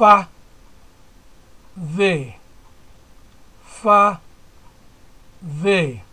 fa ve. fa ve.